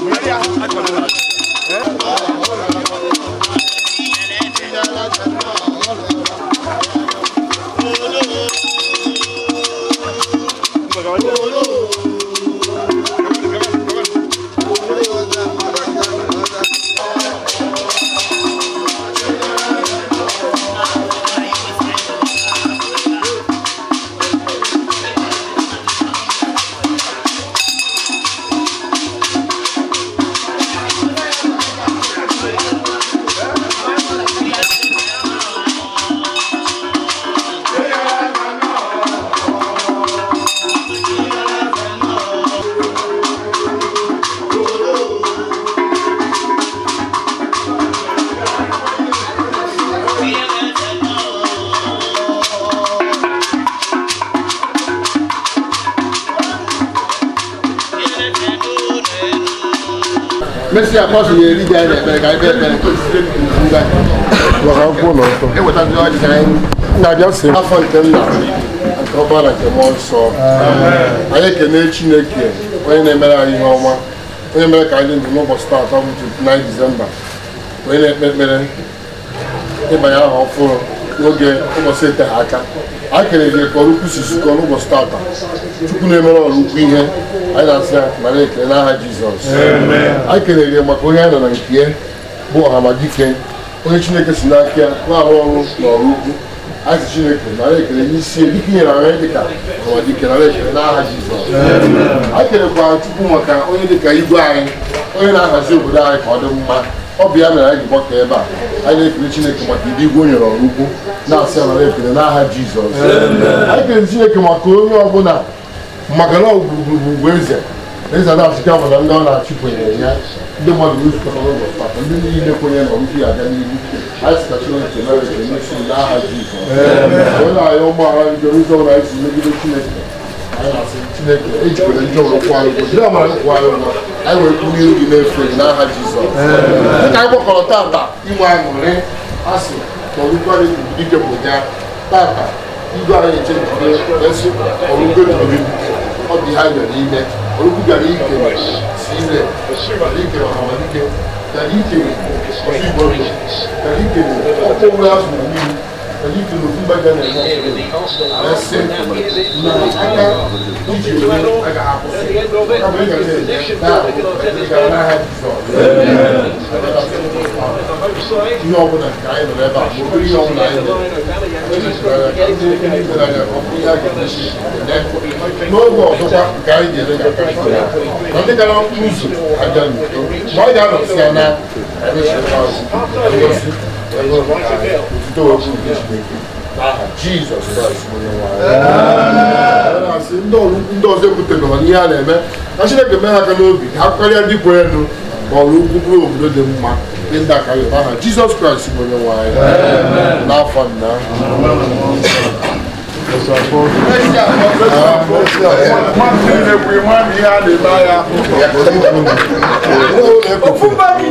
Maria, I don't know. mesị ya pọsụ ya eri ji anyị na-ekpere ka anyị ekpere ewetazi afọ nke nna nke na nke mmụọ nsọ anyị ekene chineke onye na-emere anyị ihe ọma onye mere ka anyị ndụ n'ụbọchị taata bụ 29 disemba onye na-ekpe ekpere ịbanye aha ọhụrụ n'oge ụbọchị eteghị aka akere kere gị ka ọrụ kwusi nzukọ n'ụbọchị tata Chukwu na-emere ọrụ ihe anyị na-asị ya nara ekele n'aha Jizọs a kere gị maka onye a nọ na nke ya bụ ọhamadike onye Chineke si n'aka ya na-arụ ọrụ na ọrụ ukwu azị Chineke nara ekele n'isi dịka inyere anyị dịka ọhamadike nara ekele n'aha Jizọs a kerekwara Chukwu maka onye dịka igwe anyị onye na-ahazi obodo anyị ka ọ dị mma ọ bụ ya mere anyị gbakọ ebe a anyị na-ekele chineke maka ndị igwe o nyere ọrụ ukwu na-asị amara nara ekele n'aha jizọs anyị kelere chineke maka onye ọbụla maka na ọgwụgwurugwu eze eze na-achịkwa nwere ndị ọ na-achịkwenyere ya ndị mmadụ zukọrọ n'ụlọ maka ndị niile kwenyere na ọrụ ya abịa n'ihu anyị sịka chineke mere ekele n'isi n'aha jizọs onye ahịa ụmụaha bidoro ụzọ ụra anyị si megide chineke anyị na-asị chineke ejikwere njọ ụrụ kwụ anyị ụgwọ jiri amara kwụ ụgwọ anyị were bunye obi n'efe gị n'aha jizọs dịka anyị gbakọrọ tata inwe aṅụrị asị ọrụgwarị dike bụja tata igwe anyị eche jide esi ọrụgwe jiri ọ dị ha nyere ime ọrụgwu gara ike si ire gara ike ọhamadike gara ike ọfigbo gara ike ọkpọ ụra azụ mmiri èyí ti òfin gbàgbà nàìjíríà ẹsẹ na aka iji òwe aga akwụsị kama ị gàdé na ga n'aha jizọs ihe ọbụla nke You nọ n'ebe a ma obere ihe ọbụla anyị nọ ebe a ndị ndị ndị ndị ndị n'oge ọzọkwa nke anyị ga-elejọta na ndị gara mkpụrụ ụzọ abịa n'udo ma ọ ga-anọsi ya na ndị ọzọ ebutere na ihe a na-eme na chineke mee ha aka n'obi ha karịa ndị kwere nụ ma ọrụ bụ ukwu bụrụ obodo dị mma ndị ndị aka aha jizọs kraịst bụ onye nwe n'afọ nna Mọ́tí lè pè mọ́ mi á lè bá ya. Ó fún bá mi.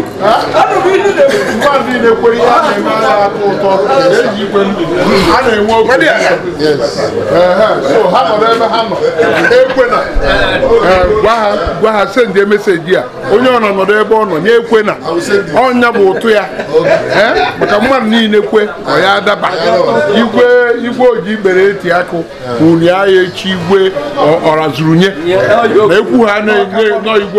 mmadụ na-ekwere ihe na-eme anya atọ ụtọ eji ikwe ndụ a na-enwe oge so ha nọ n'ebe ha nọ ekwe na gwa ha sendie meseji a onye ọ nọ ebe ọ nọ nye ekwe na ọnya bụ ụtụ ya maka mmadụ niile kwe ọ ya daba igwe igwe oji ikpere eti akụ unu ya echi igwe ọrazurunye na ekwu ha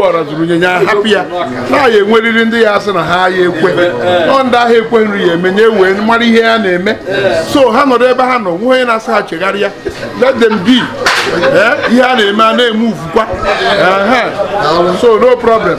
ọrazurunye ya hapụ ya na ya enweriri ndị ya sị na ha ya ekwe ọ eh. ndị ahụ ekwe nri ya emenye nye wee mara ihe ya na-eme eh. so ha nọrọ ebe ha nọ nwe onye na-asa ha let them be eh, ihe a na-eme a na-eme uvukwa so no problem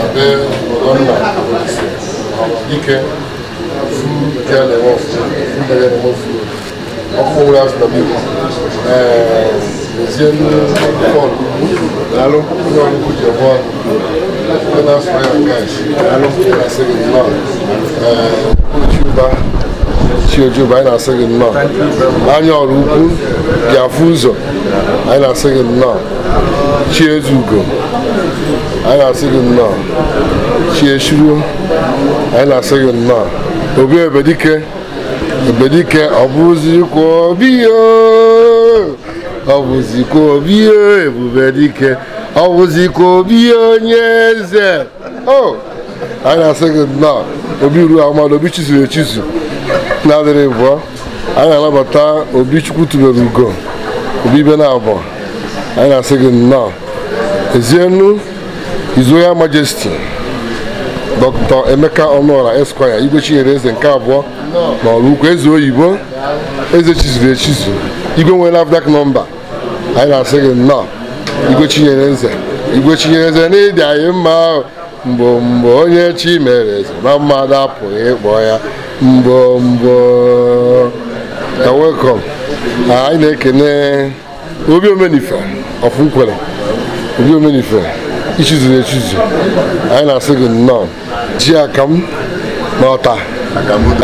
abe obodo nna ike nke na-eme a na-eme ọfụma ọkụ ọbụla azụ na mmiri ezie bọọlụ daalụ onye ọgụgụ ji ọgbọ na-afọ ya daalụ na-asị gị nnọọ chiuba ụba anyị na-asị gị nnọọ anya ọrụ ukwu bịa afụ ụzọ anyị na-asị gị anyị na-asị gị nnọọ chi echiruo anyị na-asị gị nnọọ obi ebedike ebedike ọ bụzikwa obi ọ bụzikwa obi ebubedike ọ bụzikwa obi onye eze o anyị na-asị gị nnọọ obi ruo amadụ obi chizuru echizu na-adịrị bụọ anyị na-anabata obi chukwu tubere ugo obi ibe na abụọ anyị na-asị gị nnọọ ezienu His Royal Majesty Dr. Emeka onora Esquire igwechinyere Eze nke abụọ na Ọlụukwu Eze Oyibo Eze chizuru echizu Igwe nwere NAFDAC nọmba anyị na-asị gị nnọọ igwechinyere Eze Igwe Eze n'ịdị anyị mma ahụ mgbe onye chi mere eze na mmadụ apụghị ịkpọ ya mgbo mgbo anyị na-ekene obi omenife ofunkwere obi omenife ichizu echizu anyị na-asị gị nnọọ ji akam na ọta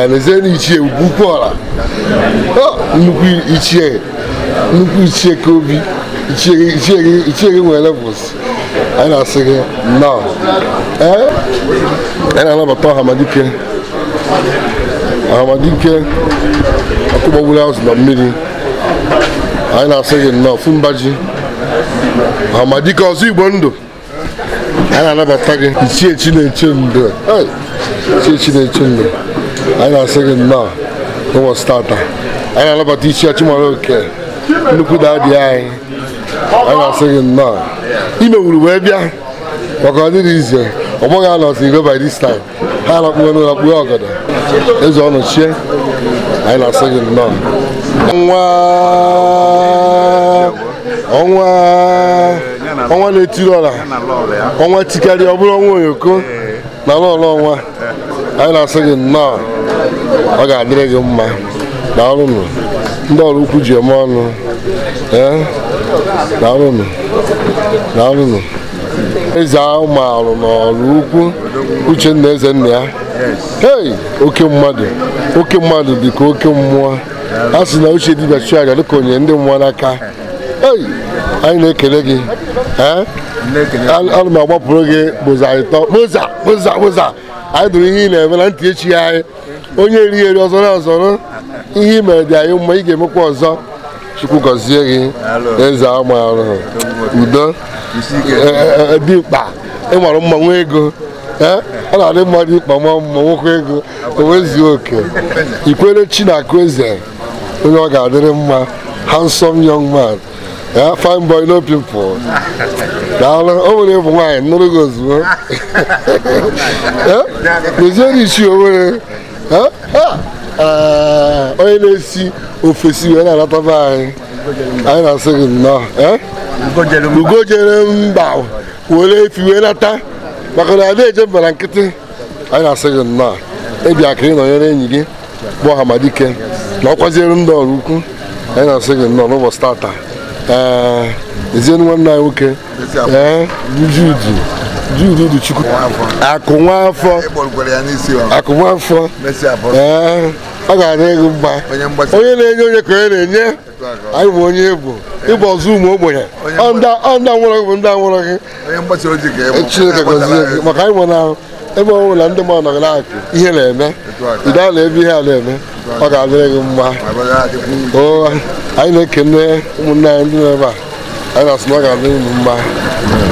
anazie na ichie ugwu ọla nnukwu ichie nnukwu ichie ka obi ichie gị nwere levels anyị na-asị gị nnọọ ee anyị na-anabata ọhamadike ahamadike ọkụ gbagburu azụ na mmiri anyị na-asị gị nnọọ fumba ji ahamadike ọzọ igbo ndụ anyị na-anabata gị ichie Chineche Ndo ichie Chineche Ndo anyị na-asị gị nnọọ ụbọchị tata anyị na-anabata ichie Chimaloke nnukwu daadị anyị anyị na-asị gị nnọọ imewuru wee bịa maka dị ize ọ bụghị anọtụ iro by this time ha na-akpụgo n'ụlọ kpụo ọgọdọ eze ọnụ chie anyị na-asị gị nnọọ ọnwa ọnwa ọnwa na-etiri ọla ọnwa tikarị ọ bụrụ ọnwa onyoko na lọlọ ọnwa anyị na-asị gị nnọọ ọ ga-adịrị gị mma na ọrụnụ ndị ọrụ ukwu ji eme ọnụ na e, ọrụnụ na ọrụnụ eze ahụ maalụ n'ọrụ ukwu uchenna eze nna ya hei oke mmadụ oke mmadụ dị ka oke mmụọ a sị na uche dibịa chụọ aja dịka onye ndị mmụọ n'aka anyị na-ekele gị ana m agbapụrụ gị bụza ịtọ bụza bụza bụza anyị dụrụ ihe ị na-eme na ntị echi anyị onye eri eri ọzọ na ihe ị mere dị anyị mma ị ga-emekwa ọzọ chukwu gọzie gị eze ama arụhụ udo dị e, e, e, mkpa ị mma ego ọ na-adị mma dị mkpa ma mma nwoke ego o oke ikwere chi na akụ eze onye ọ ga-adịrị mma handsome young man ya fine boy no pimples daalụ o nwere ịbụ nwaanyị nụrụ gị ozugbo doziere isi onwere onye na-esi ofesi wee na-alataba anyị anyị na-asị gị nnọọ ugo jere mba were efi wee nata maka na ada eje mbara nkịtị anyị na-asị gị nnọọ ebi aka ịnọnyere enyi gị bụ Hamadike na ọ kwaziere ndị ọrụ ukwu anyị na-asị gị nnọọ n'ụbọchị tata Eh, ezienu nwanne anyị nwoke judu eh, judu du chukwu akụ nwafọ akụ nwafọ eh, ọ ga-adị ego mba onye na-enye onye ka onye na-enye anyị bụ onye egbo ịbụ ọzọ ụmụ ogbenye ọ ndị anwụrụ gị bụ ndị anwụrụ gị chineke gọzie gị maka anyị nwere ahụ ebe ọ bụla ndị mmadụ nọgị na-akụ ihe na-eme ide a na-ebe ihe a na-eme ọ ga-adịrị gị mma o anyị na-ekene ụmụnne anyị ndị na-ebe a anyị na-asị na ọ ga-adịrị unu mma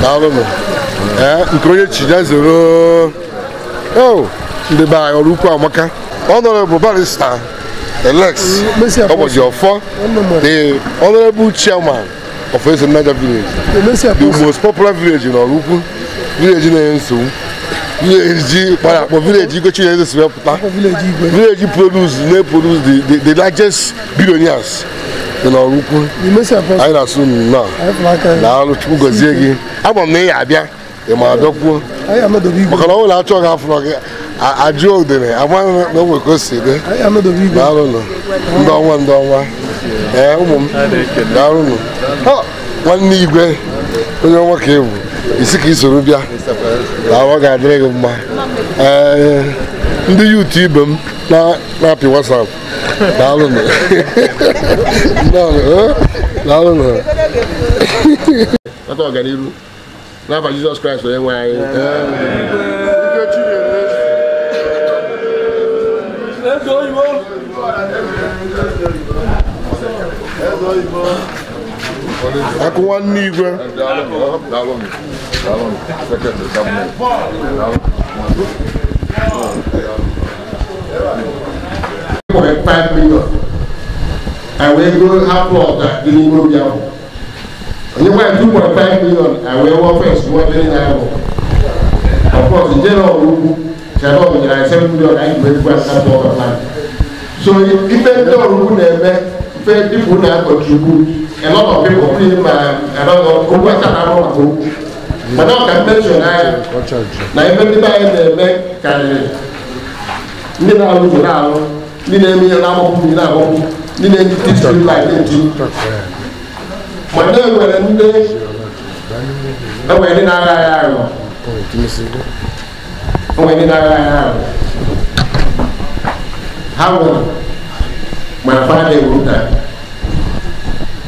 daalụnụ ee nke onye chija zoro o ndị be anyị ọrụ ukwu amaka ọnọrọbụ barista elex ụbọchị ọfọ the honorable chairman of Eze Niger village the most popular village n'ọrụ ukwu village na ensu. village para for village go change anything to puta village produce dey produce the the the largest billionaires na ọrụkwu anyị na-asụ na alụ chukwu gọzie gị agba m na ịya abịa ị ma adọkwuo maka na ọ nwere achọ gị gị ajụ odere amaghị na o nwere ka o si dị daalụnụ ndị ọnwa ndị ọnwa ee ụmụ m daalụnụ nwanne igwe onye ọnwa ka ebu isi ka isoro bịa na ọ ga-adịrị gị mma ee ndị yutu ibe m na-apị wasap daalụnụ daalụnụ eh, nata ọganiru n'afa jizọs kraịst onye nwe anyị akụ nwanne igwe nwere 5 million wee goo ha plọt n'ime obi ahụ onye nwere 2.5 million wee wụọ fes wụọ dịrị ya ahụ ọkpọt njere ọrụ ugwu chere ọrụ nyere anyị 7 million anyị bụ egwu asa plọt so ife ndị ọrụ ugwu na-eme ife ndị bụ na-akọchukwu a lot of people clean my uh, a lot of owó ẹ̀ka náà but now can mention uh, na now even if I na-eme karịrị ndị na-alụzọ na-alụ ndị na-eme ihe na-agbapụ ndị na-agbapụ ndị na-eji titi lai na-eji mana enwere ndị enwere e ndị na-agha agha ahụ enwere ndị na-agha agha ahụ ha nwere ma fa na-ewu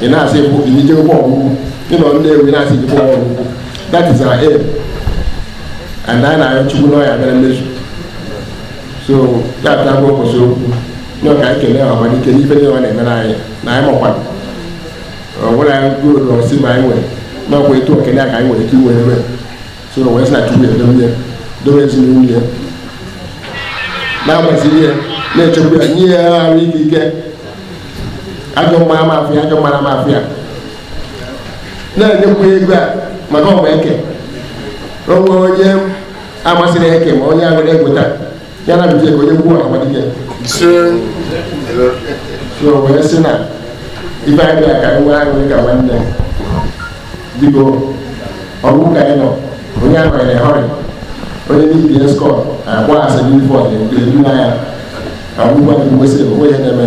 ina se bu ni je bo bu ni no nde we na se je bo bu that is our aim and then i chu no ya mere mesu so that ờ, that go so no ka ke le wa ni ke ni fe ni wa na me na ya na ya mo kwa o wo la go lo si ma nwe na ko eto ke na ka nwe ki we me so no we sa chu we do me do me si ni ni na ma si ni na chu we ni ya ri ki ke ajọ mmara m afịa ajọ mmara m afịa na-enyekwa ego a maka ọgba eke onwe onye amasịrị eke ma onye agụrụ egweta ya na biji ego onye gwuo amadike o wee sị na ibe anyị bịa ka nwa aṅụrị ka nwanne biko ọgwụ ka anyị nọ onye ahụrịrị họrị onye niile skọt agba asị ifo n'ifọ na-edu n'anya agwụgwa na-eme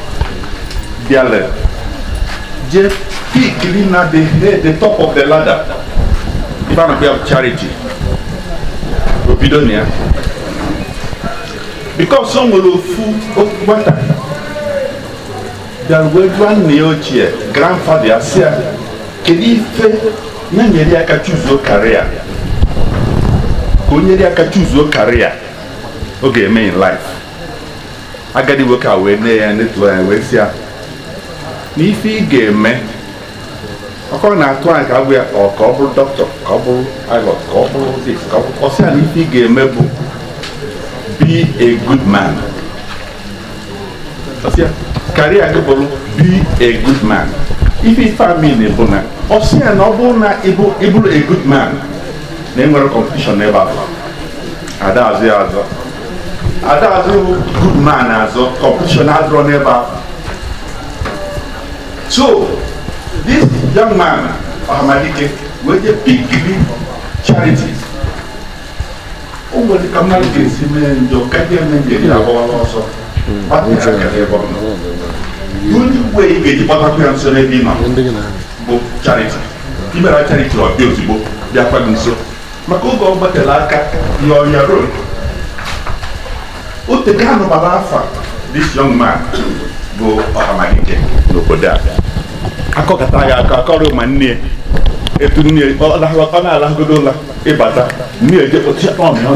their left. Just piggling at the top of the ladder. a of charity. Because some will fool water. ochie grandfather eh, ya kedu ife nyere aka chụzuo karịa ka o aka karịa ọ ga-eme in life nwoke a wee ya netuo na ife ị ga-eme ọkọ na-atụ anyị ka abụ ya ka ọ bụrụ dọkịta ka ọ bụrụ pilot ka ọ bụrụ dis ka ọ bụrụ ọsịa na ife ị ga-eme bụ be a good man ọsịa karịa gị bụrụ be a good man ife ife bụ na ọsịa na ọ bụrụ na ịbụrụ a good man na enwere kọmpetishọn n'ebe abụọ ada azụ ya azọ ada azụ good man azụ kọmpetishọn adụrọ n'ebe ahụ So, this young man, Ahmadike, was a big charity. ka mmadụ ga mee njọ ka ndị eme ebe ọ nọ uwe ị ga-eji gbatakwa ya nso n'ebe nọ bụ chariti ọbịa ozugbo bịakwa maka oge ọ aka ya ọnya o bụ n'obodo a akọkọta ya aka akọrọ ma nne ya etu nne ya ọ na-alagodo ụla ịbata nne ya eje ọnụ ya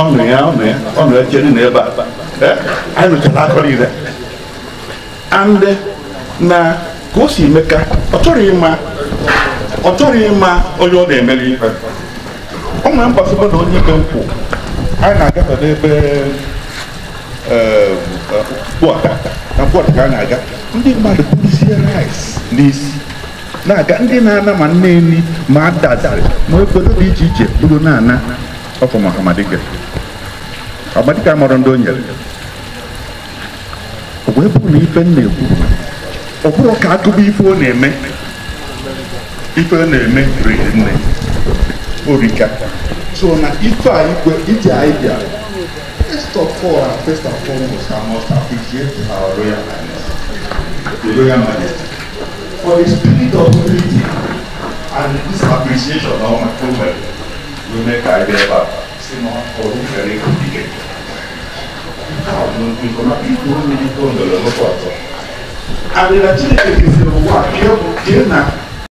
ọnụ ya ọnụ ya ọnụ ya chere na ebe a anyị nụchara akọrọ ire andị na ka o si emeka ọ chọrọ ịma ọ chọrọ ịma onye ọ na-emere ife ọ nwere mgbasịba na onye ikpe nkwụ anyị na-agafe n'ebe mkpụọta na mkpụọta ka a na-aga ndị mmadụ buruzie rice n'isi na-aga ndị na-ana ma nne nri ma adazarị ma obodo dị iche iche bụrụ na-ana ọfọ maka amadike amadike amọrọ ndị o nyere wee bụrụ na ife na-ekwu ọ bụrụ ka agụba ife ọ na-eme ife ọ na-eme riri nne orika so na ife a igwe iji anyị bịara first of all and first and foremost I must appreciate our royal highness the royal majesty for the spirit of unity and this appreciation of my company ló mẹ́ka ẹgbẹ́ bá sínú ọdún kẹrin kò dìde àwọn ìkọ́nà ìkó ní ìkó ńlọrọ lọ́pọ̀ àtọ́ àbẹ̀lẹ̀ tí èkìtì wà kí ó kí nà.